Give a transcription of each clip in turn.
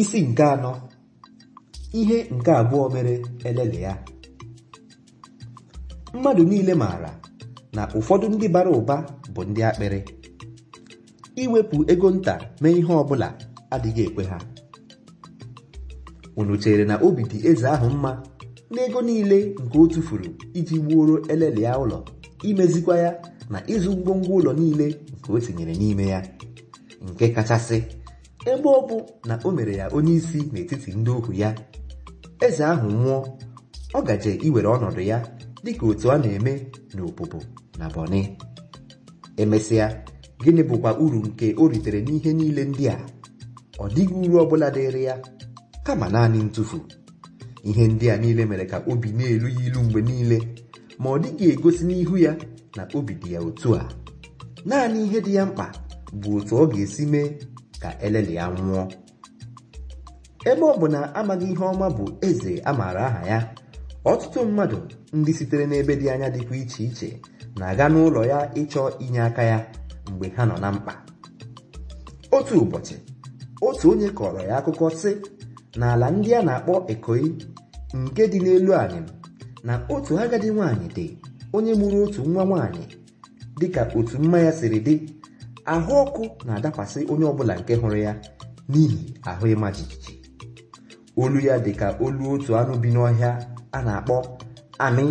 Isi nke anọ ihe nke abụọ mere elele ya mmadụ niile maara na ụfọdụ ndị bara ụba bụ ndị akpịrị iwepụ ego nta mee ihe ọ bụla adịghị ekwe ha unu chere na obi dị eze ahụ mma n'ego niile nke o tufuru iji gbuoro elele ya ụlọ imezikwa ya na ịzụ ngwongwo ụlọ niile nke o tinyere n'ime ya nke kachasị ebe ọ bụ na o mere ya onye isi n'etiti ndị ohu ya eze ahụ nwụọ ọ gaje iwere ọnọdụ ya dịka otu a na-eme n'obobo na Bọni emesịa gịnị bụkwa uru nke o ritere n'ihe niile ndị a ọ dịghị uru ọ bụla dịrị ya kama naanị ntụfu ihe ndị a niile mere ka obi na-elu ya ilu mgbe niile ma ọ dịghị egosi n'ihu ya na obi dị ya otu a naanị ihe dị ya mkpa bụ otu ọ ga-esi mee ka eleli ya nwụọ ebe ọ bụ na amaghị ihe ọma bụ eze a maara aha ya ọtụtụ mmadụ ndị sitere n'ebe dị anya dịkwa iche iche na-aga n'ụlọ ya ịchọ inye aka ya mgbe ha nọ na mkpa otu ụbọchị otu onye kọrọ ya akụkọ sị na ala ndị a na-akpọ Ikoyi nke dị n'elu anyị na otu agadi nwaanyị dị onye mụrụ otu nwa nwaanyị dịka otu mma ya siri dị ahụ ọkụ na-adakwasị onye ọbụla nke hụrụ ya n'ihi ahụ ịma jijiji olu ya dị ka olu otu anụ bi n'ọhịa a na-akpọ anị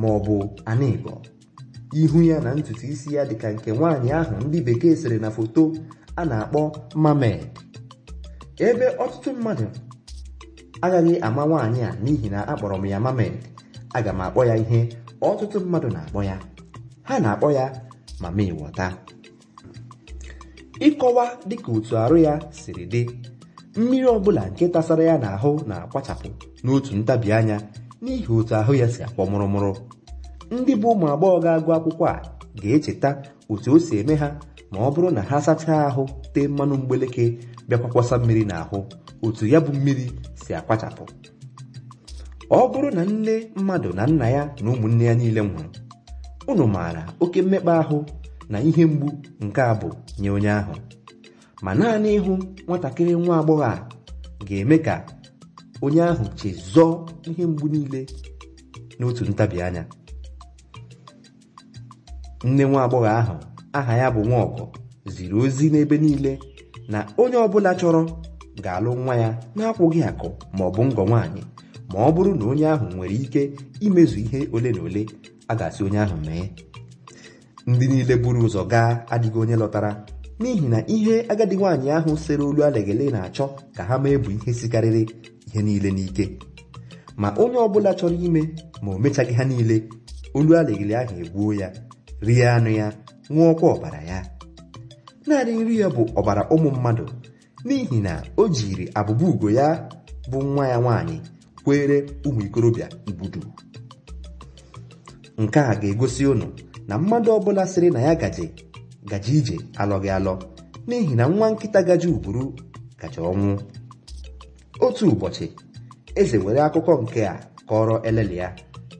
ma ọ bụ anịbo ihu ya na ntutu isi ya dị ka nke nwaanyị ahụ ndị bekee sere na foto a na-akpọ mamed ebe ọtụtụ mmadụ agaghị ama nwaanyị a n'ihi na akpọrọ m ya mamed aga m akpọ ya ihe ọtụtụ mmadụ na-akpọ ya ha na-akpọ ya mama ịkọwa dịka otu arụ ya siri dị mmiri ọbụla nke tasara ya n'ahụ na-akwachapụ n'otu ntabi anya n'ihi otu ahụ ya si akpọ mụrụmụrụ ndị bụ ụmụ agbọghọ ga-agụ akwụkwọ a ga-echeta otu o si eme ha ma ọ bụrụ na ha sachaa ahụ tee mmanụ mgbeleke bịakwa kwasa mmiri n'ahụ otu ya bụ mmiri si akpachapụ. ọ bụrụ na nne mmadụ na nna ya na ụmụnne ya niile nwụrụ unu maara oke mmekpa ahụ na ihe mgbu nke a bụ nye onye ahụ ma naanị ịhụ nwatakịrị nwa agbọghọ a ga-eme ka onye ahụ chezọọ ihe mgbu niile n'otu ntabi anya nne nwa agbọghọ ahụ aha ya bụ nwaọgọ ziri ozi n'ebe niile na onye ọbụla chọrọ ga-alụ nwa ya na-akwụghị akụ ma ọ bụ ngọ nwaanyị ma ọ bụrụ na onye ahụ nwere ike imezu ihe ole na ole a ga-asị onye ahụ mee ndị niile buru ụzọ gaa adịghị onye lọtara n'ihi na ihe agadi nwaanyị ahụ sere olu alegele na-achọ ka ha mee bụ ihe sikarịrị ihe niile n'ike ma onye ọbụla chọrọ ime ma o mechaghị ha niile olu alegele ahụ egbuo ya rie anụ ya ọkwa ọbara ya naanị nri ya bụ ọbara ụmụ mmadụ n'ihi na o jiri abụba ugo ya bụ nwa ya nwaanyị kwere ụmụ ikorobịa ibudu nke a ga-egosi ụnụ na mmadụ ọbụla sịrị na ya gaje gaje ije alọghị alọ n'ihi na nwa nkịta gaje ugburu gaje ọnwụ otu ụbọchị eze were akụkọ nke a kọrọ elele ya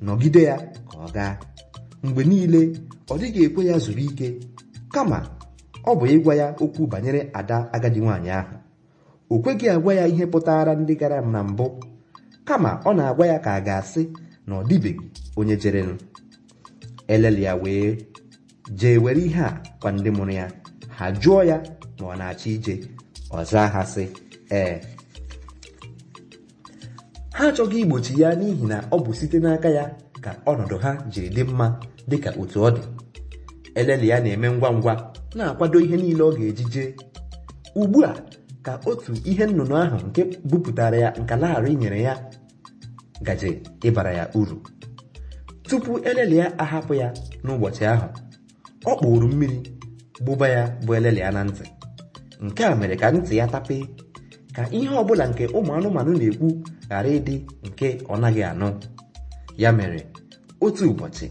nọgide ya ka ọ gaa mgbe niile ọ dịghị ekwe ya zuru ike kama ọ bụ ịgwa ya okwu banyere ada agadi nwaanyị ahụ o kweghị agwa ya ihe pụtara ndị gara na mbụ kama ọ na-agwa ya ka a ga-asị na ọ dịbeghị onye jerenụ elele ya wee jee were ihe a kwa ndị mụrụ ya ha jụọ ya ma ọ na-achọ ije ọza ha sị ee ha achọghị igbochi ya n'ihi na ọ bụ site n'aka ya ka ọnọdụ ha jiri dị mma dịka otu ọ dị elele ya na-eme ngwa ngwa na-akwado ihe niile ọ ga-eji jee ugbu a ka otu ihe nnụnụ ahụ nke bupụtara ya nka nyere ya gaje ịbara ya uru tupu elele ya ahapụ ya n'ụbọchị ahụ ọ kpụrụ mmiri gbụba ya bụ elele ya na ntị nke a mere ka ntị ya tapee ka ihe ọbụla nke ụmụ anụmanụ na-ekwu ghara ịdị nke ọ naghị anụ ya mere otu ụbọchị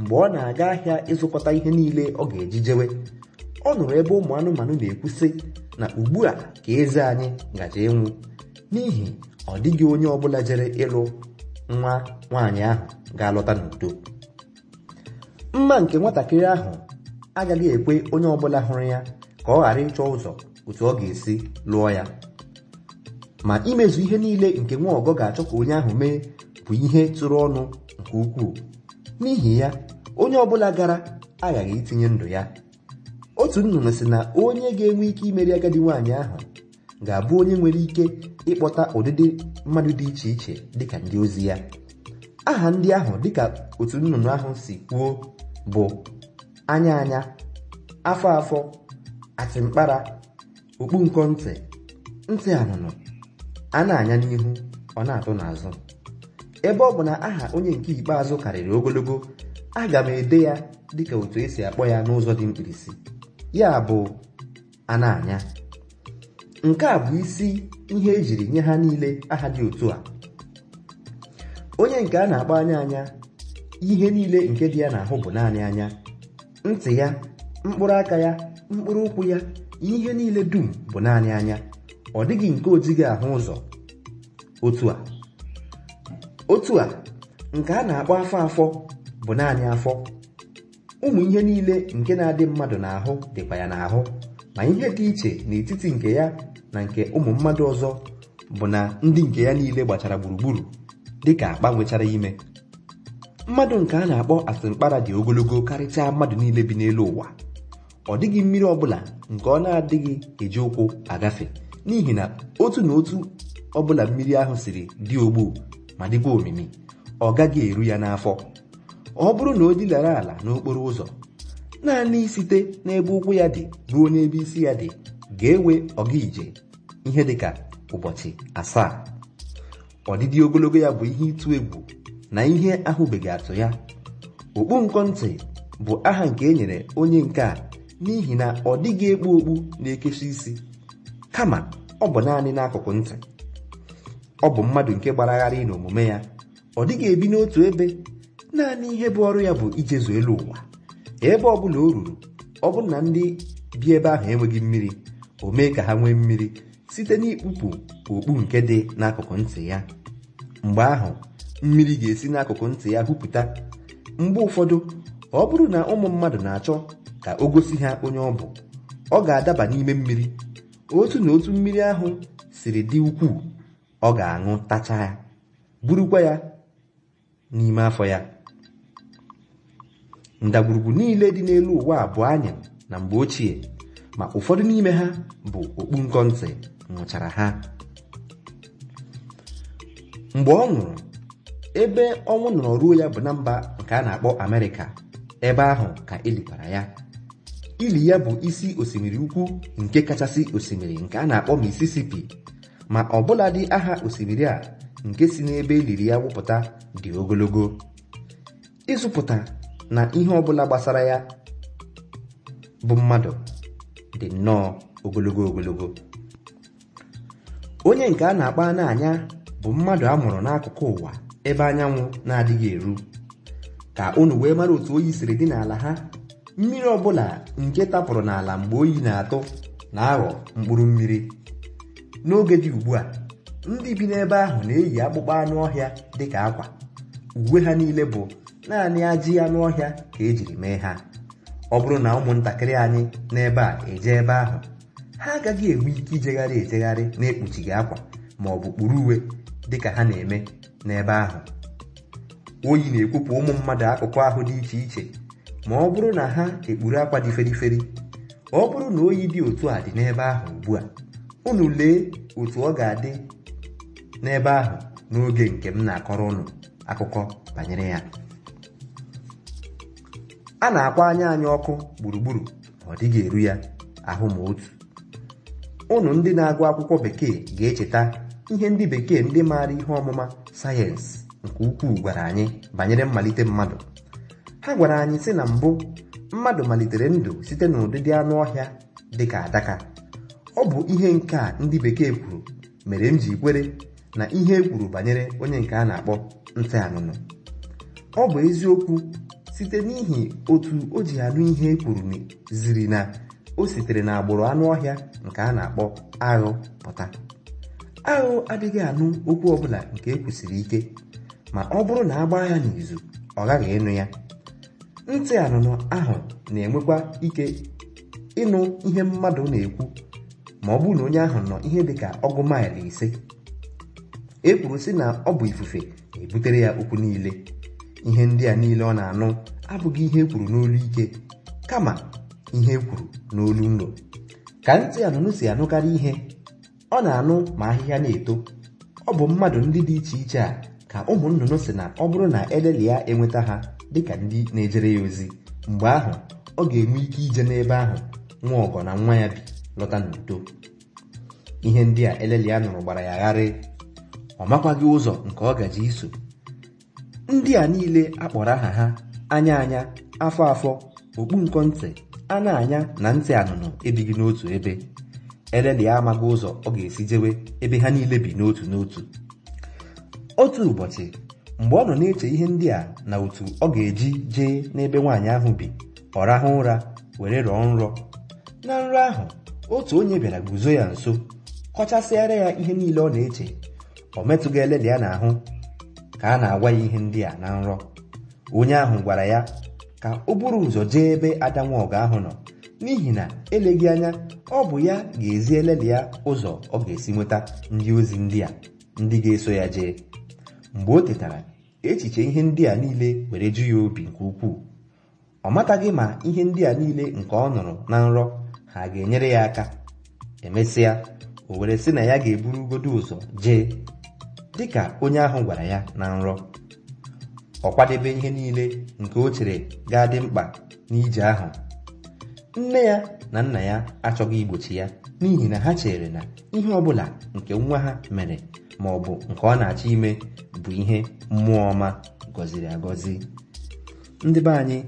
mgbe ọ na-aga ahịa ịzụkọta ihe niile ọ ga-eji jewe ọ nụrụ ebe ụmụ anụmanụ na-ekwu sị na ugbu a ka eze anyị gaje ịnwụ n'ihi ọ dịghị onye ọbụla jere ịlụ nwa nwaanyị ahụ ga-alọta n'udo mma nke nwatakịrị ahụ agaghị ekwe onye ọbụla hụrụ ya ka ọ ghara ịchọ ụzọ otu ọ ga-esi lụọ ya ma imezu ihe niile nke nwa ọgọ ga-achọ ka onye ahụ mee bụ ihe tụrụ ọnụ nke ukwuu n'ihi ya onye ọbụla gara aghaghị itinye ndụ ya otu nnụnụ si na onye ga-enwe ike imeri agadi nwaanyị ahụ ga-abụ onye nwere ike ịkpọta ụdịdị mmadụ dị iche iche dịka ndị ozi ya aha ndị ahụ dịka otu nnụnụ ahụ si kwuo bụ anya anya afọ afọ atịmkpara mkpara nkọ ntị ntị anụnụ a anya n'ihu ọ na-atụ n'azụ ebe ọ bụ na aha onye nke ikpeazụ karịrị ogologo aga m ede ya dịka otu esi akpọ ya n'ụzọ dị mkpirisi ya bụ ana anya nke a bụ isi ihe ejiri nye ha niile aha dị otu a onye nke a na-akpọ anya anya ihe niile nke dị ya n'ahụ bụ naanị anya ntị ya mkpụrụ aka ya mkpụrụ ụkwụ ya ihe niile dum bụ naanị anya ọ dịghị nke ojighị ahụ ụzọ otu a otu a nke a na-akpọ afọ afọ bụ naanị afọ ụmụ ihe niile nke na-adị mmadụ n'ahụ dịkwa ya n'ahụ ma ihe dị iche n'etiti nke ya na nke ụmụ mmadụ ọzọ bụ na ndị nke ya niile gbachara gburugburu dịka akpa nwechara ime mmadụ nke a na-akpọ Asịmkpara dị ogologo karịchaa mmadụ niile bi n'elu ụwa ọ dịghị mmiri ọbụla nke ọ na-adịghị eji ụkwụ agafe n'ihi na otu na otu ọbụla mmiri ahụ siri dị ogbu ma dịkwa omimi ọ gaghị eru ya n'afọ ọ bụrụ na o dilara ala n'okporo ụzọ naanị site n'ebe ụkwụ ya dị ruo n'ebe isi ya dị ga-ewe ọga ije ihe dịka ụbọchị asaa ọdịdị ogologo ya bụ ihe ịtụ egwu na ihe ahụbeghị atụ ya okpu ntị bụ aha nke e nyere onye nke a n'ihi na ọ dịghị ekpu okpu na ekesha isi kama ọ bụ naanị n'akụkụ ntị ọ bụ mmadụ nke gbaragharị n'omume ya ọ dịghị ebi n'otu ebe naanị ihe bụ ọrụ ya bụ ijezu elu ụwa ebe ọ bụla o ruru ọ bụrụ na ndị bi ebe ahụ enweghị mmiri o mee ka ha nwee mmiri site n'ikpupu okpu nke dị n'akụkụ ntị ya mgbe ahụ mmiri ga-esi n'akụkụ ntị ya hupụta mgbe ụfọdụ ọ bụrụ na ụmụ mmadụ na-achọ ka o gosi ha onye ọ bụ ọ ga-adaba n'ime mmiri otu na otu mmiri ahụ siri dị ukwuu ọ ga-aṅụ tacha ya burukwa ya n'ime afọ ya ndagwurugwu niile dị n'elu ụwa abụọ anya na mgbe ochie ma ụfọdụ n'ime ha bụ okpu nkọ ntị nwụchara ha mgbe ọ nwụrụ ebe ọnwụ nọrọ ruo ya bụ na mba nke a na-akpọ amerịka ebe ahụ ka elikwara ya ili ya bụ isi osimiri ukwu nke kachasị osimiri nke a na-akpọ misisipi ma ọbụladị aha osimiri a nke si n'ebe eliri ya wụpụta dị ogologo ịzụpụta na ihe ọbụla gbasara ya bụ mmadụ dị nnọọ ogologo ogologo onye nke a na-akpa anya. bụ mmadụ a mụrụ n'akụkụ ụwa ebe anyanwụ na-adịghị eru ka unu wee mara otu oyi siri dị n'ala ha mmiri ọbụla nke tapụrụ n'ala mgbe oyi na-atụ na-aghọ mkpụrụ mmiri n'oge dị ugbu a ndị bi n'ebe ahụ na-eyi akpụkpọ anụ ọhịa dị ka akwa uwe ha niile bụ naanị ajị anụ ọhịa ka ejiri mee ha ọ bụrụ na ụmụntakịrị anyị n'ebe a eje ebe ahụ ha agaghị enwe ike ijegharị ejegharị na-ekpuchighị akwa ma ọ bụ kpuru uwe dịka ha na-eme n'ebe ahụ oyi na-ekwupụ ụmụ mmadụ akụkọ ahụ dị iche iche ma ọ bụrụ na ha ekpuru akwa dị feriferi ọ bụrụ na oyi dị otu a dị n'ebe ahụ ugbu a unu lee otu ọ ga-adị n'ebe ahụ n'oge nke m na-akọrọ ụnụ akụkọ banyere ya a na-akwa anya anyị ọkụ gburugburu ọ dịghị eru ya ahụ ma otu unu ndị na-agụ akwụkwọ bekee ga-echeta ihe ndị bekee ndị maara ihe ọmụma sayensị nke ukwuu gwara anyị banyere mmalite mmadụ ha gwara anyị sị na mbụ mmadụ malitere ndụ site n'ụdịdị anụ ọhịa dị ka adaka ọ bụ ihe nke a ndị bekee kwuru mere m ji kwere na ihe e kwuru banyere onye nke a na-akpọ ntị anụnụ ọ bụ eziokwu site n'ihi otu o ji anụ ihe e kwuru ziri na o sitere n'agbụrụ anụ ọhịa nke a na-akpọ aghụ pụta ahụ adịghị anụ okwu ọbụla nke ekwusiri ike ma ọ bụrụ na agba ya n'izu ọ ghaghị ịnụ ya ntị anụnụ ahụ na-enwekwa ike ịnụ ihe mmadụ na-ekwu ma ọ bụrụ na onye ahụ nọ ihe dịka ọgụ maịlụ ise e kwuru sị na ọ bụ ifufe na-ebutere ya okwu niile ihe ndị a niile ọ na-anụ abụghị ihe e kwuru n'olu ike kama ihe e kwuru n'olu nro ka ntị anụnụ si anụkarị ihe ọ na-anụ ma ahịhịa na-eto ọ bụ mmadụ ndị dị iche iche a ka ụmụ nnụnụ si na ọ bụrụ na eleli ya enweta ha dịka ndị na-ejere ya ozi mgbe ahụ ọ ga-enwe ike ije n'ebe ahụ nwa ọgọ na nwa ya bi lọta n'udo ihe ndị a eleli ya nụrụ gbara ya gharị ọ makwaghị ụzọ nke ọ gaji iso ndị a niile akpọrọ aha ha anya anya afọ afọ okpu nkọ ntị a anya na ntị anụnụ ebighị n'otu ebe elelịa amaghị ụzọ ọ ga-esi jewe ebe ha niile bi n'otu n'otu otu ụbọchị mgbe ọ nọ na-eche ihe ndị a na otu ọ ga-eji jee n'ebe nwaanyị ahụ bi ọ rahụ ụra were rọọ nrọ na nrọ ahụ otu onye bịara guzo ya nso kọchasịara ya ihe niile ọ na-eche ọ metụghị elelịa n'ahụ ka a na-agwa ya ihe ndị a na nrọ onye ahụ gwara ya ka o buru ụzọ jee ebe ada ahụ nọ n'ihi na eleghị anya ọ bụ ya ga-ezi eleli ya ụzọ ọ ga-esi nweta ndị ozi ndị a ndị ga-eso ya jee mgbe o tetara echiche ihe ndị a niile were ju ya obi nke ukwuu ọ mataghị ma ihe ndị a niile nke ọ nụrụ na nrọ ha ga-enyere ya aka emesịa o were sị na ya ga-eburu ugodo ụzọ jee dịka onye ahụ gwara ya na nrọ ọ kwadebe ihe niile nke o chere ga-adị mkpa n'ije ahụ nne ya na nna ya achọghị igbochi ya n'ihi na ha chere na ihe ọbụla nke nwa ha mere ma ọ bụ nke ọ na-achọ ime bụ ihe mmụọ ọma gọziri agọzi ndị be anyị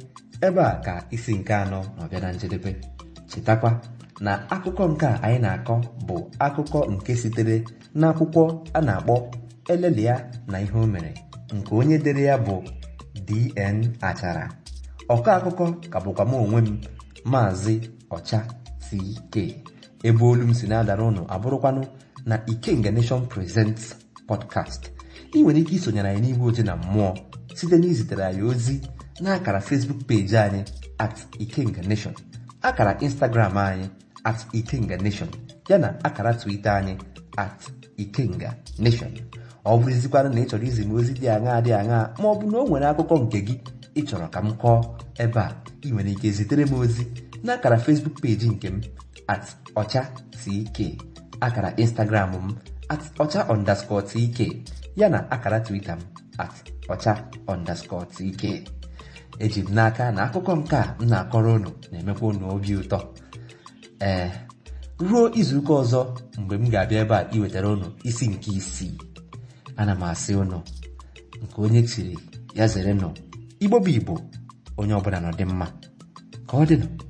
ebe a ka isi nke anọ ma bịa na njedebe chetakwa na akụkọ nke a anyị na-akọ bụ akụkọ nke sitere n'akwụkwọ a na-akpọ Elelia na ihe o mere nke onye dere ya bụ D.N. Achara ọkọ akụkọ ka bụkwa m onwe m maazị ọcha CK ebe olu m si na-adara ụnụ abụrụkwanụ na Ikenga Nation Presents podcast ị nwere ike isonyere anyị n'ihu oche na mmụọ site na izitere anyị ozi na akara Facebook peji anyị at Ikenga Nation akara Instagram anyị at Ikenga Nation yana akara Twitter anyị at Ikenga Nation ọ bụrụzikwanụ na ị chọrọ izi ozi dị aṅa dị aṅa ma ọ na o nwere akụkọ nke gị ị chọrọ ka m kọọ ebe a ị nwere ike zitere m ozi na akara Facebook peji nke m at ọcha tk akara Instagram m at ọcha underscore tk yana akara Twitter m at ọcha underscore tk eji m n'aka na akụkọ nke a m na-akọrọ unu na-emekwa unu obi ụtọ ee ruo izuụka ọzọ mgbe m ga-abịa ebe a iwetara unu isi nke isii ana m asị unu nke onye chiri ya zere nọ igbo bụ igbo onye ọbụla nọ dị mma ka ọ dị dịnụ